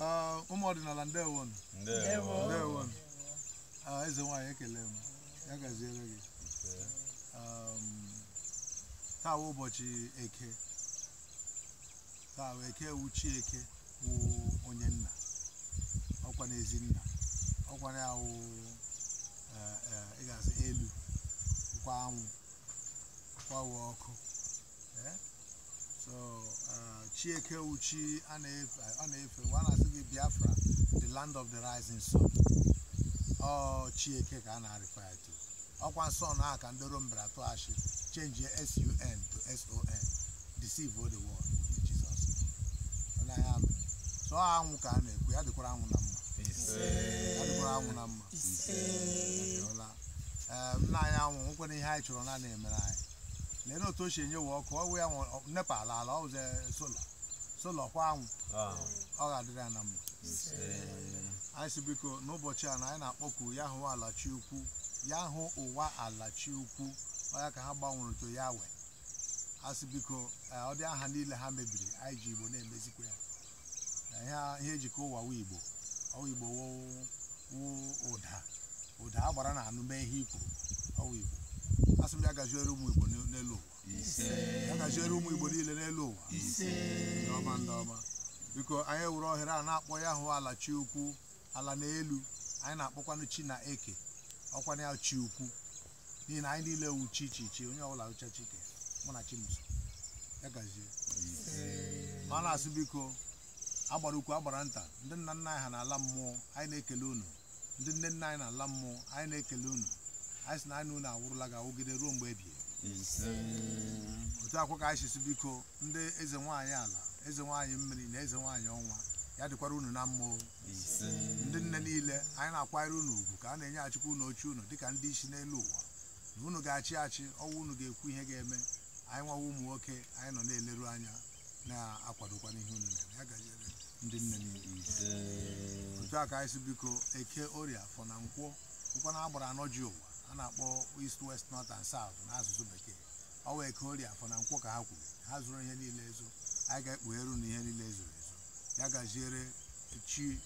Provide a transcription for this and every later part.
Uh, ụmụ ọdịnala ndewo ndewo ah, eze nwanyị ekele m ya gaziere gị um, taa ụbọchị eke taa eke wuchi eke wụ onye nna ọkwa n'ezi nna ọkwa na awụ eh, eh, ịgasị elu kwa anwụ ọkụ ọkụ eh? ah, Chieke Uchi ọ na-efe ọ na-asị gị Biafra the land of the rising sun ọ Chieke ka a na-arịfa ya ọkwa nsọ na aka ndị Rom bịara tụọ achị change sun to son deceive all the world with Jesus so anwụ ka a na-ekwu ya anwụ na mma ya dịkwara anwụ na mma nna anyị anwụ nwekwara ihe anyị chọrọ na na-emere anyị lena otu o si enye wa ọkụ ọwụ ya nepa ala ala ọwụze sola sola ọkwa anwụ ọ ga-adịrị ya na mma anyị si biko n'ụbọchị a na anyị na-akpọku ya hụ alachi ukwu ya hụ ụwa alachi ukwu ọya ka ha gbanwere to ya we asị biko eh, ọ dị aha niile ha mebiri anyị ji igbo na-emezikwa ya eh, ihe ejikọ e ụwa wu igbo ọwụ igbo wụ ụda ụda agbara na anụ mee ihe ikwu ọwụ igbo asị m ya gaziere ụmụ Igbo n'elu ụwa gaziere ụmụ Igbo niile n'elu ụwa ndị ọma ndị ọma biko anyị were ohere a na-akpọ ya hụ ala chi ala n'elu anyị na-akpọkwanụ chi na eke ọkwanụ ya chi ukwu n'ihi na anyị niile wu chi chi chi onye ọbụla ụcha chike mụ na chimso ya gazie ma na-asị biko agbara ukwu agbara nta ndị nna nna anyị ha na ala mmụọ anyị na-ekele unu ndị nne nna anyị na ala mmụọ anyị na-ekele unu anyị sị na anyị unu awụrụla ga awụgide ruo mgbe ebie otu akwa ka anyị sisi biko ndị eze nwaanyị ala eze nwaanyị mmiri na eze nwaanyị ọnwa ya dịkwara unu na mma ndị nne niile anyị na-akwanyere unu ugwu ka a na achịkwa unu oche unu dịka ndị isi n'elu ụwa na unu ga-achị achị ọnwa unu ga-ekwu ihe ga-eme anyị nwawa ụmụ nwoke anyị nọ na-eleru anya na-akwadokwa n'ihe unu na-eme ya gajere ndị nne niile otu a ka anyị si biko eke orie afọ na nkwọ ụkwa na agbara anọ ji ụwa a na-akpọ east west north and south n'asụsụ bekee ọ wee ka ori afọ na nkwụ ka ha kwuru ha zụrụ ihe niile ezo anyị ga-ekpugheru na ihe niile ezoro ezo ya gaziere chi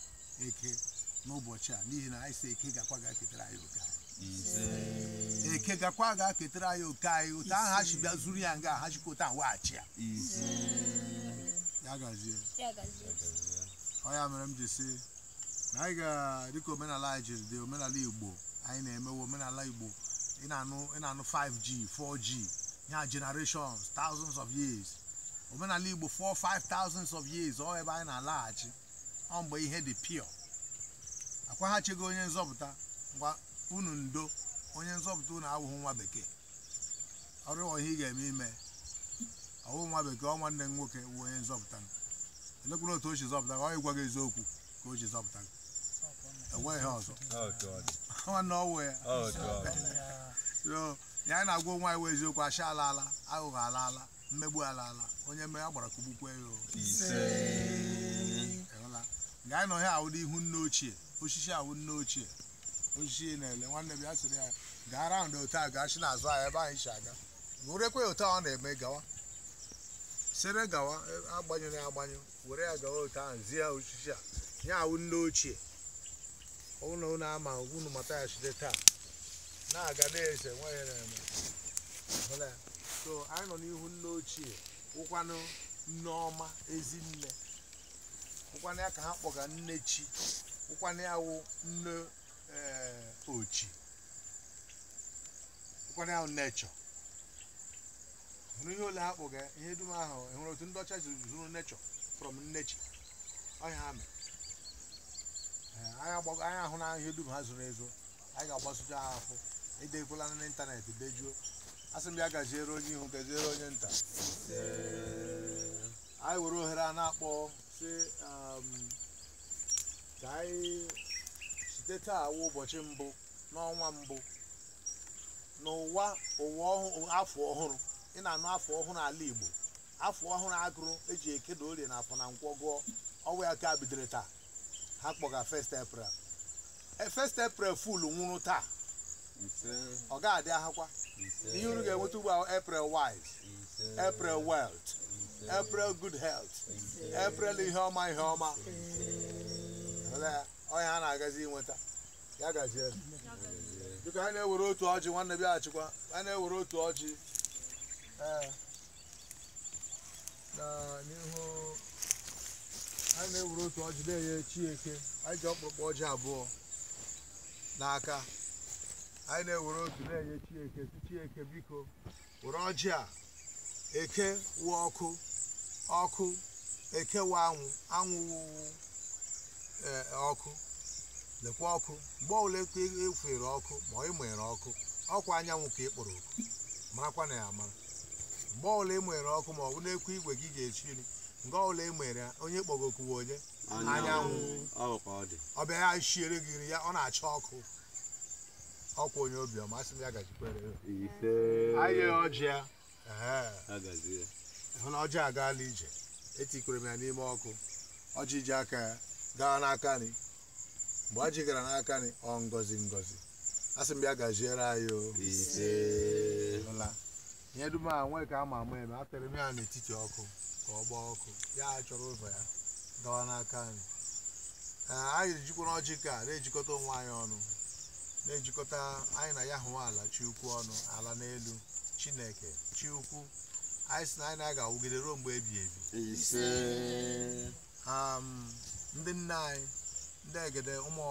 eke n'ụbọchị a n'ihi na anyị si eke gakwa ga-eketara anyị oke anyị eke gakwa ga-eketara anyị oke anyị otu ahụ ha si bịa zuru ya nga ha chikwa otu ahụ weghachi ya ya gazie ọ ya mere m ji si na anyị ga dịka omenala anyị jiri dị omenala igbo anyị na-emewe omenala igbo ị na-anụ 5G 4G ya generations thousands of years omenala igbo 4 5 of years ọ ebe anyị na-alaghachi ọ mgbe ihe dị pure akwaghachigo onye nzọpụta gwa unu ndo onye nzọpụta unu awụghị nwa bekee ọrụ ihe ị ga-eme ime ọwụ nwa bekee ọ nwanne m nwoke wụ onye nzọpụta elekwuru otu o si zọpụta ọ ịgwa gị eziokwu ka o ji zọpụta gị enweghị ọzọ ọ nọwe oh, ya na-agwa nwa iwe eziokwu asha alaala aghụghọ alaala mmegbu alaala onye mmeghe agbara kụgbukwe ya gaa nọ ya ahụ ihu nne ochie osisi awụ nne ochie osisi na-ele nwanne m ya sịrị ya gaa raụnd otu a gaa si n'azụ ahụ ebe anyị si aga werekwe otu a ọ na-eme gawa sere gawa e, agbanyụrụ ya agbanyụ were ya gawa otu ahụ zie osisi a ya ahụ nne ochie ụnụ na ama unu mata ya site taa na-aga na-ese nwa ya na-eme so anyị nọ n'ihu nne ochie ụkwanụ nneọma ezinne ụkwanụ ya ka ha kpọga nne chi ụkwanụ ya wụ nne eh, ochi ụkwanụ ya wụ nechọ hụrụ ihe ole ha kpọga ihe dum ahụ hụrụ e otu ndị ọcha zuru nechọ from nnechi ọhịa ha mere anyị ahụ e na ihe dum ha zoro ezo anyị ga-agbasucha ha afọ edekwala n'ịntanetị dejuo asị m ya gaziere onye ihu gaziere onye nta anyị were ohere a na-akpọ si um, ka anyị site taa ụbọchị mbụ n'ọnwa mbụ n'ụwa ụwa afọ ọhụrụ ị na-anụ afọ ọhụrụ ala Igbo afọ ọhụrụ agụrụ eji ekedo orie na afọ na nkwọ gụọ ọwa ya ka bidoro taa ha kpọga first April e, first April full nwụrụ taa ọ ga-adị ahụkwa ihe unu ga-enweta ugbu a April wise April wealth April good health April ihe ọma ihe ọma onye ha na-agazi inweta ya gazie dịka ha na-ewere otu ọjị nwanne bịa achịkwa ha na-ewere otu ọjị ee n'ihu anyị na-ewuru otu ọjị na-enye chieke anyị ji ọkpụkpọ ọjị abụọ n'aka anyị na-ewere otu na-enye chieke chieke biko were ọjị a eke wụ ọkụ ọkụ eke wụ anwụ anwụ e, ọkụ lekwa ọkụ mgbe ọbụla ekwere e ọkụ ma ị mụnyere ọkụ ọkwa anyanwụ ka ị kpọrọ oku marakwa na ya amara mgbe ọbụla ị ọkụ ma ọ bụ n'ekwu igwe gị ga-echiri nke ọbụla e mere onye kpọgokwuwe onye anyanwụ ọbịa ya shiere gị nri ya ọ na achọ ọkụ ọkwa onye obiọma sị m ya gajikwere anyị ọjị hụ na ọjị agaala ije etikwere m ya n'ime ọkụ ọjị ji aka ya gaa n'aka nri mgbe ọjị gara n'aka nri ọ ngọzi ngọzi asị m ya gaziere anyị o ihe dum a nwee ka ama ama eme atara m ya n'etiti ọkụ ka ọ gbaa ọkụ ya achọrọ ụzọ ya dọwa n'aka anyị anyị jikwara ọjị ka na-ejikọta onwe anyị ọnụ na-ejikọta anyị na ya hụ ala chiukwu ọnụ ala n'elu chineke chiukwu anyị si na anyị na-aga awụgide ruo mgbe ebi ebi ndị nne anyị ndị egede ụmụ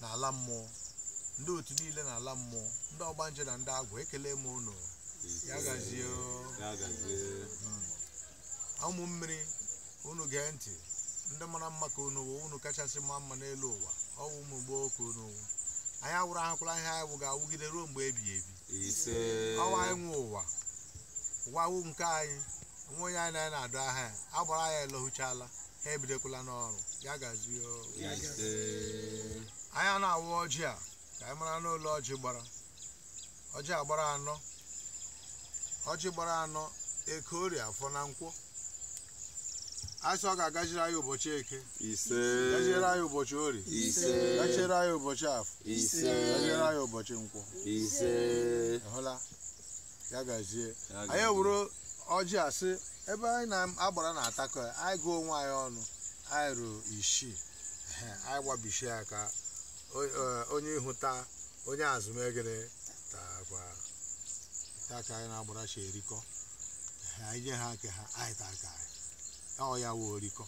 na ala mmụọ ndị otu niile na ala mmụọ ndị ọgbanje na ndị agwa ekele m ụnụ ya gazie hmm. ụmụ mmiri unu gee ntị ndị mara mma ka unu wụ unu kachasị mma mma n'elu ụwa ọ wụ ụmụ gboo ka unu wụ anyị awụrụ ahụkwala ihe anyị wụ ga-awụgide ruo mgbe ebighị ebi ọwa anyị nwe ụwa ụwa wụ nke anyị nwa onye anyị na-adụ aha ya agbara ya elohuchala ha ebidokwala n'ọrụ ya gazi anya na-awụ ọjị a ka anyị mara n'ụlọ ọjị gbara ọjị agbara anọ ọjị gbara anọ ekorie afọ na nkwụ. asị ọ ga-agajiri anyị ụbọchị eke ise gajere anyị ụbọchị orie ise anyị ụbọchị afọ ise gajere anyị ụbọchị nkwụ. ise hụla ya gazie anyị wuru ọjị asị ebe anyị na-agbara na-atakọ ya anyị gụọ onwe anyị ọnụ anyị ruo isii anyị ya aka e, onye ịhụta onye azụmegere takwa aka anyị na-agbara chi erikọ anyị nye ha nke ha anyị aka anyị ọ ya wee orikọ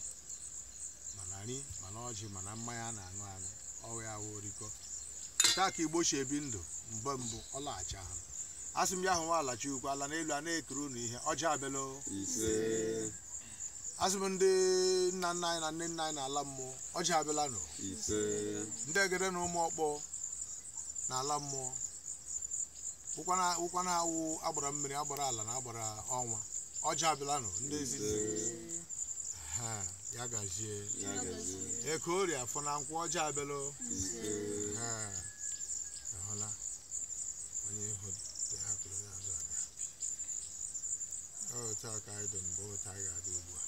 mana nri mana ọjị mana mmanya a na-aṅụ aṅụ ọ ya wee orikọ taa ka igbo si ebi ndụ mgbe mbụ ọ laghachi ahụ a sị m ya hụ alachi ukwu ala n'elu a na-ekiri ụnụ ihe ọjị abịala asị m ndị nna nna anyị na nne nna anyị na ala mmụọ ọjị abịala nụ ndị egede na ụmụ ọkpọ ala mmụọ ụkwana awụ agbara mmiri agbara ala na agbara ọnwa ọjị abịala nụ ndị ezi ya gazie eke ori afọ na nkwụ ọjọọ abịalụ ahụla e onye ihu hapụrụ n'azụ aga otu a ka anyị dị mbụ otu anyị ga-adị ugbu a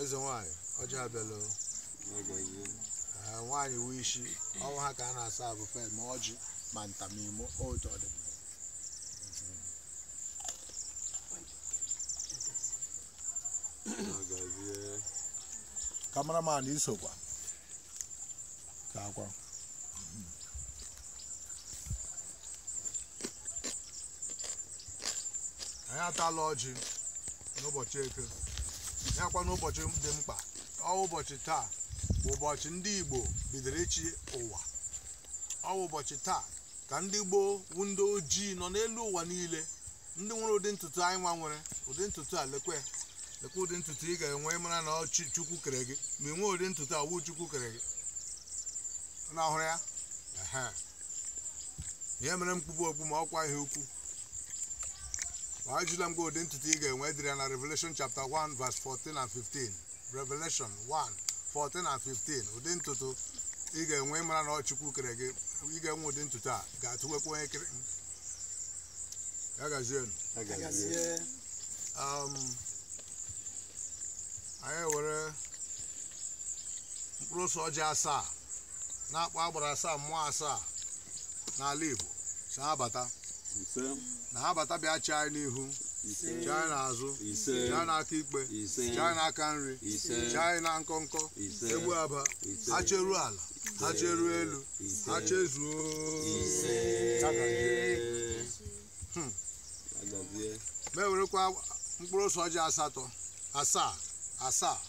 eze nwanyị ọjọọ abịalụ nwaanyị wee isi ọnwụ ha ka a na-asa abụ fel ma ọjị ma ntamimo otu ọdịmma kameraman isokwa ka akwa anyị atala ọjị n'ụbọchị eke ya kwa n'ụbọchị dị mkpa ọ ụbọchị taa bụ ụbọchị ndị igbo bidoro ịchị ụwa ọ ụbọchị taa ka ndị gboo wu ndị ojii nọ n'elu ụwa niile ndị nwere ụdị ntutu anyị nwere ụdị ntutu a lekwe lekwa ụdị ntutu ị ga-enwe mara na ọ kere gị ma ị nwee ụdị ntutu awụ chukwu kere gị na ya ihe mere mkpụkpụ okpu ma ọkwa ihe ukwu ma ajụla m gị ụdị ntutu ị ga-enwe dịrị ya na Revelation chapter 1 verse 14 and 15 Revelation 1 14 and 15 ụdị ntutu ị ga-enwe mara na kere gị ị ga-enwe ụdị ntutu a ga-atụwekwa onye kere ya gazienu anyị were mkpụrụ ose ọjị asaa na-akpọ agbara asaa mmụọ asaa n'ala Igbo si ha bata na ha bata bịa chi anyị n'ihu chi anyị n'azụ chi anyị n'aka ikpe chi anyị n'aka nri chi anyị na nkọnkọ egbu aba ha cheruo ala ha cheruo elu ha chezuo ma ewerekwa mkpụrụ ose ọjị asatọ asaa asaa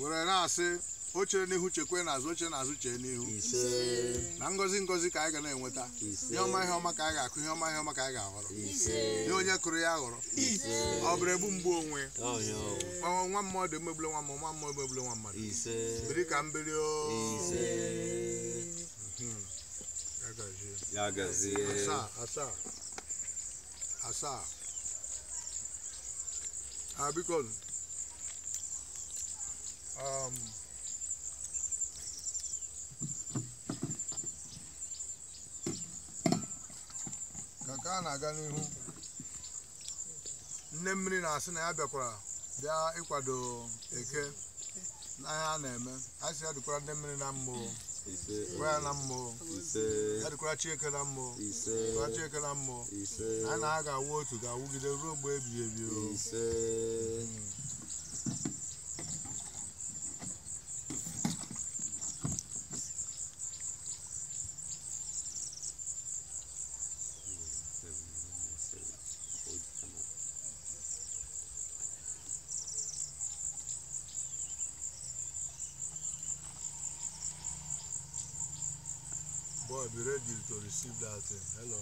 were na-asị o chere n'ihu chekwe n'azụ oche n'azụ chee n'ihu na ngọzi ngọzi ka anyị ga na-enweta ihe ọma ihe ọma ka anyị ga-akụ ihe ọma ihe ọma ka anyị ga-aghọrọ ihe onye kụrụ ya aghọrọ ọ bụrụ ebu mgbu onwe nwa mmadụ emegbule nwa mmadụ nwa mmadụ emegbule nwa mmadụ biri ka mbili o mhm. asaa asaa asaa biko ka nke a na-aga n'ihu nne mmiri na-asị na ya bịakwara bịa ịkwado eke n'ahịa a na-eme anyị si ya dịkwara nne mmiri na mbụ. na mmụọ adịkwara Chieke na mmụọ dịkwara Chieke na mmụọ a na ha ga-awụ otu ga-awụgide ruo mgbe ebighị ebi be ready to receive that. Uh, hello.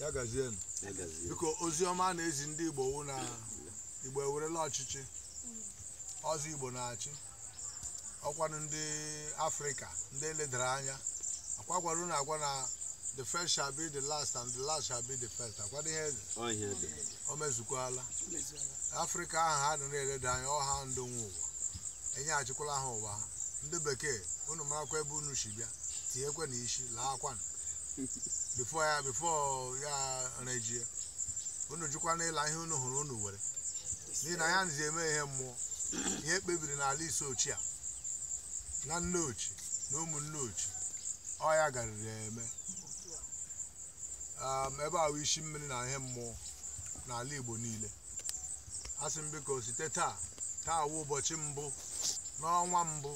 ya gazienụ biko ozi na-ezi ndị Igbo wụ na Igbo ewerela ọchịchị ọzọ Igbo na-achị ọkwanụ ndị Afrịka ndị eledara anya akwakwarụ na agwa na the first shall be the last and the last shall be the first akwado ihe eze o mezukwala Afrịka ahụ ha nọ na-eleda anya ọha ndụ nwe ụwa enyeghachikwala ha ụwa ha ndị bekee unu marakwa ebe unu shi bịa tinyekwa na isi laa akwanụ bifo ya bifo ya n'ila unu n'ịla ihe unu hụrụ unu were n'ihi na ya nzi eme ihe mmụọ ihe kpebiri n'ala ise ochie na nne ochie na ụmụnne ochie ọ ya garịrị eme um, ebe ahụ isi mmiri na ihe mmụọ n'ala Igbo niile asị m biko site taa taa wụ ụbọchị mbụ n'ọnwa mbụ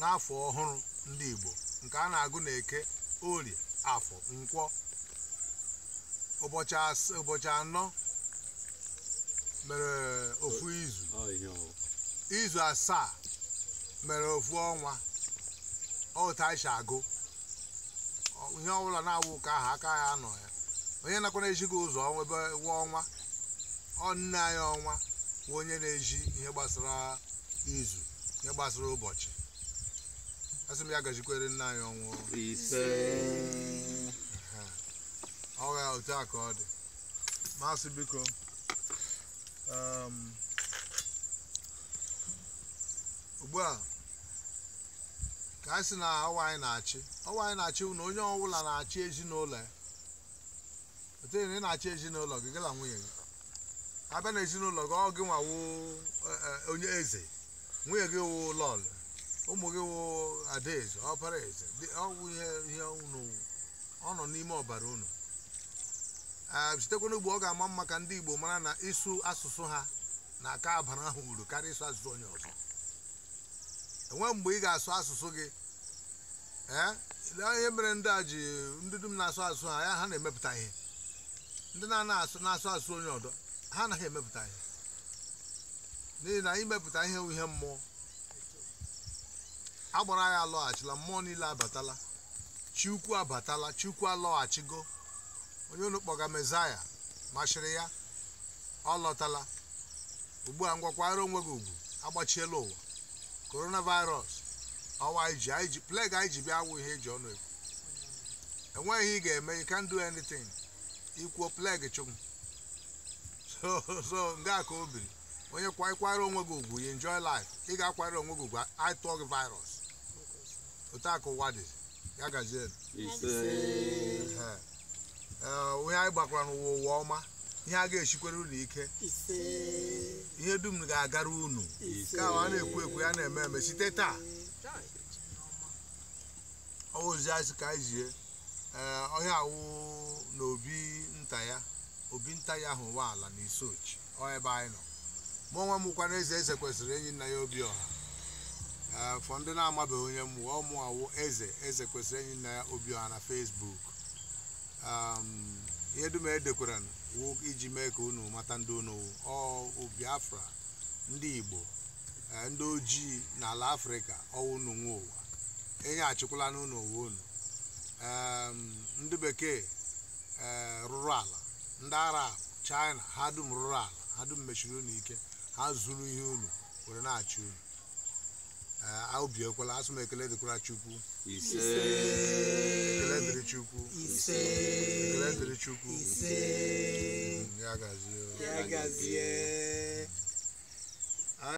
n'afọ ọhụrụ ndị Igbo nke a na-agụ na eke orie afọ nkwọ ụbọchị anọ mere ofu izu oh, izu asaa mere ofu ọnwa ọta anyị agụ ihe ọbụla na-awụ ụka ahụ aka ya anọ ya onye nakwa na-ejighị ụzọ ebe wa ọnwa ọ nne anyị ọnwa bụ onye na-eji ihe gbasara izu ihe gbasara ụbọchị asị m ya gazikwere nna anyị ọnwụ ise ọha otu a ka ọ dị maasị biko um, ugbu a ka anyị sị na ọwa anyị na-achị ọwa anyị na-achị na onye ọbụla na-achị ezinụlọ ya otere na ị na-achị ezinụlọ gị gala nwunye gị abịa na ezinụlọ gị ọ gị nwa nwawo e, e, onye eze nwunye gị wụ lọlụ ụmụ gị wụ adaeze ọbara eze ọwụ ihe unu ọ nọ n'ime ọbara unu sitekwa ugbo ọ ga-ama mma ka ndị Igbo mara na ịsụ asụsụ ha na aka abara ahụ uru karịa ịsụ asụsụ onye ọzọ enwe mgbe ị ga-asụ asụsụ gị ee eh, ihe mere ndị a ji ndị dum na-asụ asụsụ ha ya ha na-emepụta ihe ndị na-asụ na-asụ asụ onye ọdọ ha anaghị emepụta ihe n'ihi na imepụta ihe ihe mmụọ agbara ya alọghachila mmụọ niile abatala chukwu abatala chukwu alọghachigo onye unu kpọga mezaya ya ọ lọtala ugbu a ngwakwara onwe gị ugwu agbachiela ụwa coronavirus ọwa iji anyị ji bịa awụ ihe eji ọnụ ekwu enweghị ihe ị ga-eme yi kan do anytin ikwuo pleg chụm so so nga ka o biri onye kwaikwara onwe gị ugwu yi enjoy life ị ga-akwara onwe gị ugwu atụọ virus otu ụwa dị ya gazie eh, onye anyị gbakwara n'ụwa ụwa ọma ihe a ga-esikwere unu ike ihe dum ga-agara unu ka a na-ekwu ekwu ya na-eme eme site taa ozi asị ka eh, ọhịa awụ na obi nta ya obi nta ya ahụ ala na isochi ọ ebe anyị nọ mụ onwe m kwana eze eze kwesịrị enyi nna ya obi ọha Eh, fọ ndị na-amabeghị onye m ọmụ awụ eze eze kwesịrị enyi nna ya obioha na fesbuk ehm, ihe dum edekwara wụ iji mee ka unu mata ndị unu ọ biafra ndị igbo eh, ndị ojii n'ala afrịka ọwụnụ nwe ụwa enye achịkwala n'ụlọ ụwa unu ehm, ndị bekee eh, rụrụ ala ndị arab china ha dum rụrụ ala ha dum mechiri unu ike ha zuru ihe unu were na-achị unu Ah, obi ekwela asụ m ekele dịkwara chukwu ekele dị chukwu chukwu mm, ya gazie